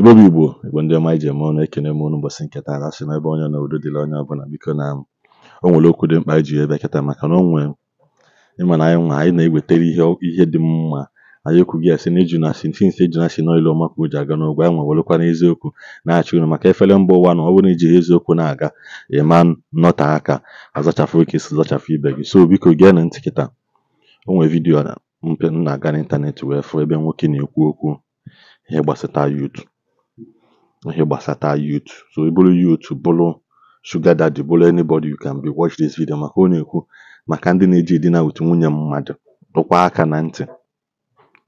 Igbo bụ Igbo Igbo ndị ọma iji eme ọnụ ekene m unu ụbọchị nke taa asị n'ebe onye na udo dịrị onye ọbụla biko na o nwere okwu dị mkpa iji ebe kịta maka na onwe ịma na anyị nwa anyị na-ewetara ihe dị mma anyị ekwughị asị na ijuna asị nsi nsi ejuna asị n'ọlụ ọma ka o ji aga n'ụgwọ anyị nwewerekwa n'eziokwu na-achị unu maka efere mba ụwa na ọ bụrụ iji eziokwu na-aga ịma nnọta aka azachafụ oke si zachafụ ibe gị so biko gee na ntị kịta o nwere vidiyo na mpe m na-aga n'ịntanetị wee fụ ebe nwoke na-ekwu okwu ihe gbasata yutub ihe gbasata youth so ịbụrụ youth bụrụ shuga daddy bụrụ anybody you can be watch this video maka ọ na-ekwu maka ndị na-eji edina with nwunye mmadụ dọkwa aka na ntị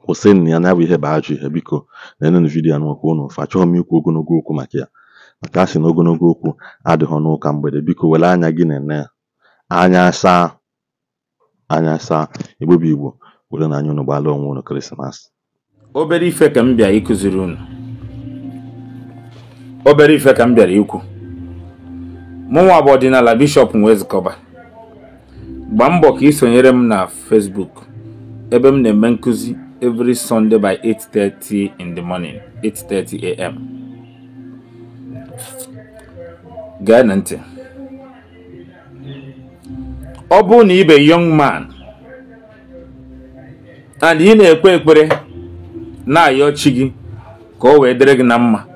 kwụsịnụ ya na bụ ihe bụ ajọ ihe biko na-enenụ vidiyo n'ụkwụ ụnụ ofe chọọ m ikwu ogologo okwu maka ya maka asị na ogologo okwu adịghị n'ụka mgbede biko were anya gị na-ene ya anya saa anya saa igbo igbo were na anya ụnụ gbaala onwe ụnụ krismas obere ife ka m bịa ịkụziri ụnụ obere ife ka m bịara ikwu mụnwa bụ ọdịnala bishọp Nwezikọba gbaa mbọ ka ị sonyere m na Facebook ebe m na-eme nkụzi every Sunday by 8:30 in the morning 8:30 am gee na ntị ọ bụrụ na ibe yọng man and ị na-ekpe ekpere na-ayọ chi gị ka o wee dịrị gị na mma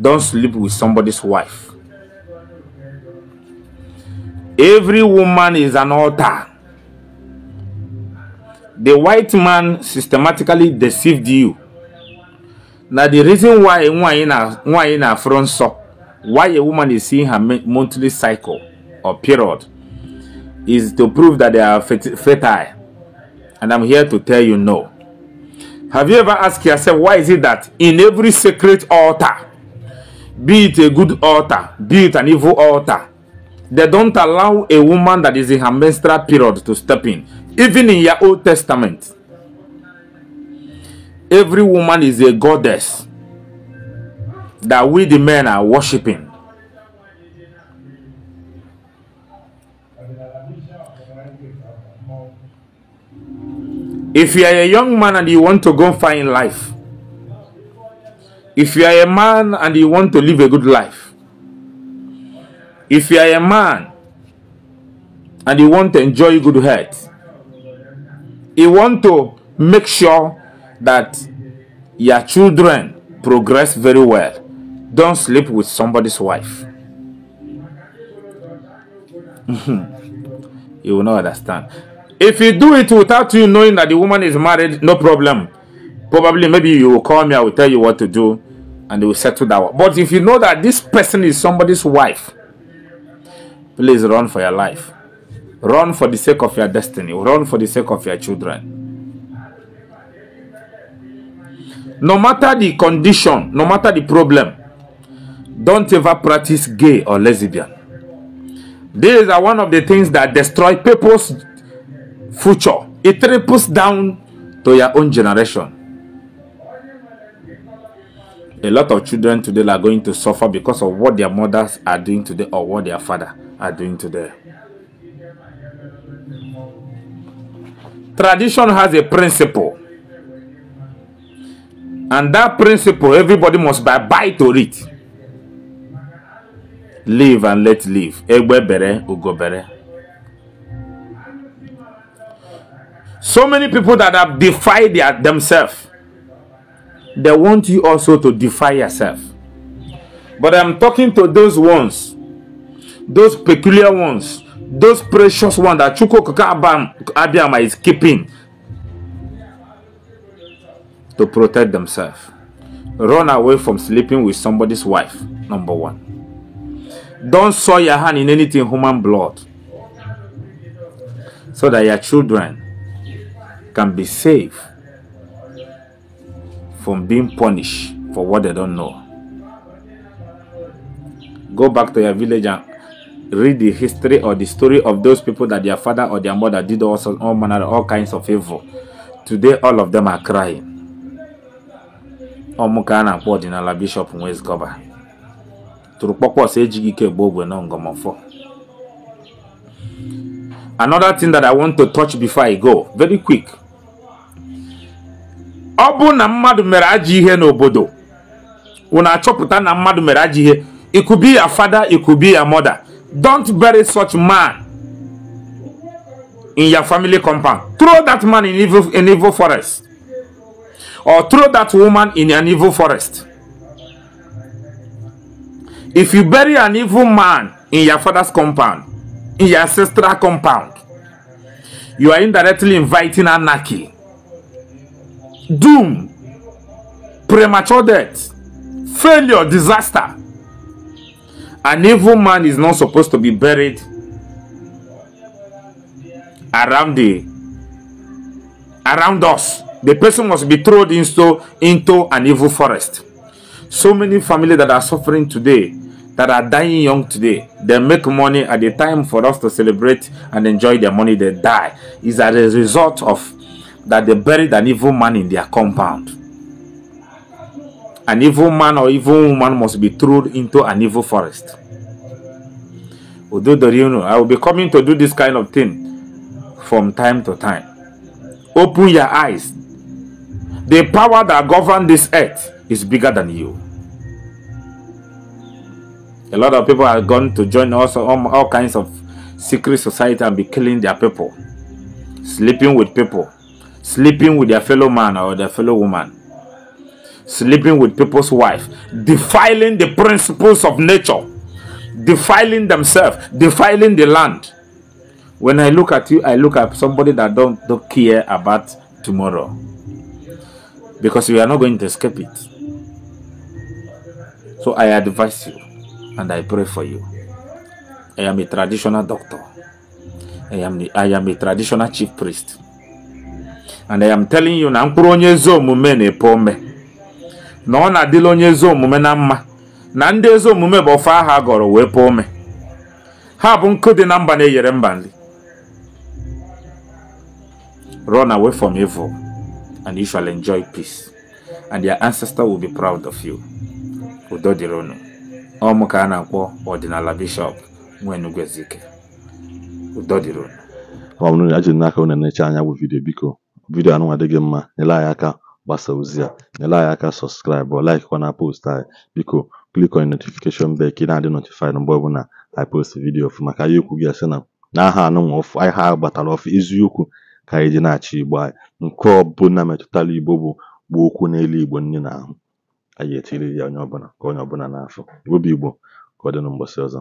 don't sleep with somebody's wife. Every woman is an altar. The white man systematically deceived you. Now the reason why why in a why in a front so why a woman is seeing her monthly cycle or period is to prove that they are fertile. And I'm here to tell you no. Have you ever asked yourself why is it that in every sacred altar be it a good altar, be it an evil altar, they don't allow a woman that is in her menstrual period to step in. Even in your Old Testament, every woman is a goddess that we the men are worshipping. If you are a young man and you want to go find life, if you are a man and you want to live a good life, if you are a man and you want to enjoy good health, you want to make sure that your children progress very well. Don't sleep with somebody's wife. Mm-hmm. you will not understand. If you do it without you knowing that the woman is married, no problem. Probably, maybe you will call me, I will tell you what to do, and we will settle that one. But if you know that this person is somebody's wife, please run for your life. Run for the sake of your destiny. Run for the sake of your children. No matter the condition, no matter the problem, don't ever practice gay or lesbian. These are one of the things that destroy people's future. It triples down to your own generation. a lot of children today are going to suffer because of what their mothers are doing today or what their father are doing today. Tradition has a principle. And that principle, everybody must buy, buy to it. Live and let live. Egbe bere, So many people that have defied their, themselves they want you also to defy yourself. But I'm talking to those ones, those peculiar ones, those precious ones that Chuko Abiyama is keeping to protect themselves. Run away from sleeping with somebody's wife, number one. Don't soil your hand in anything human blood so that your children can be safe from being punished for what they don't know. Go back to your village and read the history or the story of those people that their father or their mother did all, all manner, all kinds of evil. Today, all of them are crying. ọmụka na-akpọ bishọp in tụrụ kpọkpọs na another thing that i want to touch before i go very quick ọ bụ na mmadụ mere ajọ ihe n'obodo wụ na-achọpụta na mmadụ mere ajọ ihe it could be your father it could be your mother don't bury such man in your family compound throw that man in evil, in evil forest or throw that woman in an evil forest if you bury an evil man in your father's compound in your ancestral compound you are indirectly inviting anarchy doom, premature death, failure, disaster. An evil man is not supposed to be buried around the around us. The person must be thrown into into an evil forest. So many families that are suffering today, that are dying young today, they make money at the time for us to celebrate and enjoy their money. They die is as a result of that they buried an evil man in their compound. An evil man or evil woman must be thrown into an evil forest. I will be coming to do this kind of thing from time to time. Open your eyes. The power that governs this earth is bigger than you. A lot of people are going to join also all, all kinds of secret society and be killing their people, sleeping with people, sleeping with their fellow man or their fellow woman, sleeping with people's wife, defiling the principles of nature, defiling themselves, defiling the land. When I look at you, I look at somebody that don't, don't care about tomorrow. Because you are not going to escape it. So I advise you and I pray for you. I am a traditional doctor. I am, the, I am a traditional chief priest. and I am telling you na mkpụrụ onye ezi omume na-epe ome na ọ na-adịla onye ezi omume na mma na ndị ezi omume bụ ofe aha gọrọ wee pe ome ha bụ nkụ dị na mba na-eyere mba nri run away from evil and you shall enjoy peace and your ancestor will be proud of you udo dịrị unu ọmụ ka a na-akpọ ọdịnala bishọp nwenugwezike udo dịrị unu ọ bụrụ na n'aka unu na-eche anya bụ vidiyo biko vidiyo anụnwa dị gị mma nyere anyị aka gbasa ozi a nyere anyị aka sọskraịbụ laik na post anyị biko klik on notification bell ka ị na-adị notifaid mgbe ọbụla anyị post vidiyo ọfụ maka ya okwu gị asị na n'aha anụnwa ọfụ aha gbatara ọfụ eziokwu ka anyị ji na-achị igbo anyị nke ọbụla metụtara igbo bụ gbaa okwu n'elu igbo nne na ahụ anyị etiri ya onye ọbụla ka onye ọbụla na-afụ igbo igbo ka ọ ọzọ